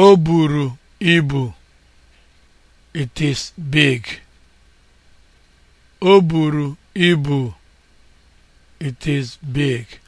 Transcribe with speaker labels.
Speaker 1: O buru ibu. It is big. It is big.